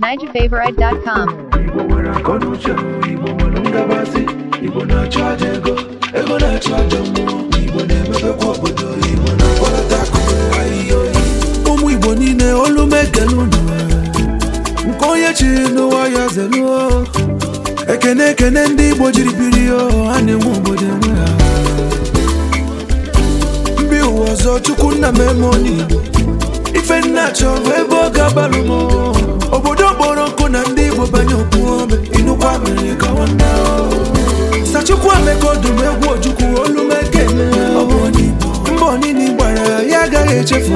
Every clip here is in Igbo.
NigerFavorite.com Igbo nwere na Igbo nwere Igbo na ego, ego na mmụọ, Igbo na obodo, Igbo na Ụmụ Igbo niile olu mekele nke onye chiri n'ụwa ya ekene ekene ndị Igbo jiri biri ha na-enwe obodo enwe ha ọzọ chukwu nna m ife nna chọrọ ebe ọ ga-agbalụ m obodo kpọrọ nkụ na ndị igbo banye okwu ome inukwa mere ka nwanne sachukwu ameka ọdụm egwu ojukwu olumekene mba onini gbara ya agaghị echefu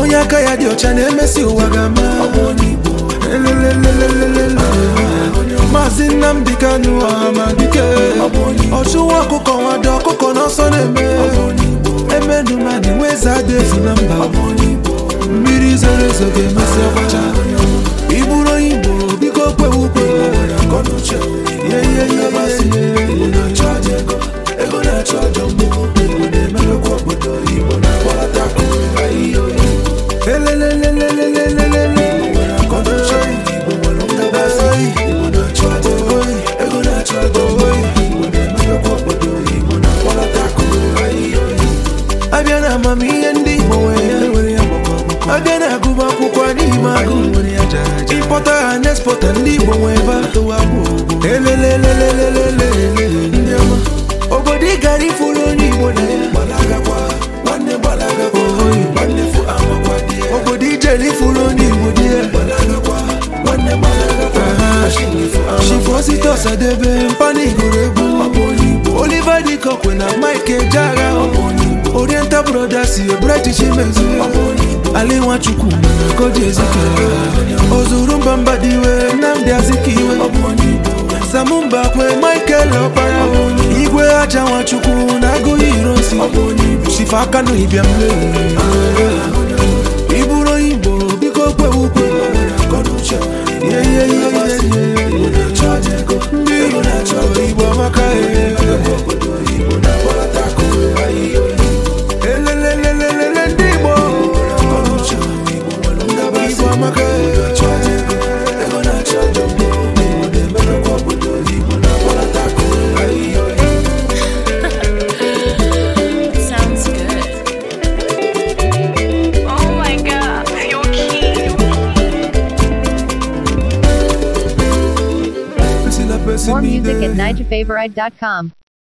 onye aka ya dị ọcha na-emesi ụwa ga-ama maazị Nnamdi Kanu Amadike ọchụwa ọkụkọ nwado ọkụkọ n'ọsọ na-eme ọdụmadị nweza dị efu na mba mmiri zoro ezo ga-emesi ọbacha ị bụrụ onye Igbo biko kwewu ukwe elelelelelele abịa na amamihe ndị Igbo nwere ya abịa na-agụba akwụkwọ n'ime agụ ịkpọta ha na-espọta ndị Igbo nwee ebe atụwa elelelelelele obodo ị gara ifuru onye Igbo na obodo ijere ifuru onye Igbo dị ya shifo site ọsadebe mpanigoro egwu Oliver Dịkọkwe na Mike Ejeagha oriental brothers british mezu ali nwachukwu koji ezike ozuru mbamba dị iwe nnamdị azikiwe samumba kwe michael ọkpara igwe aja nwachukwu na agụghị irosi shifa aka n'ibia mmeri more music at nightfavorite.com.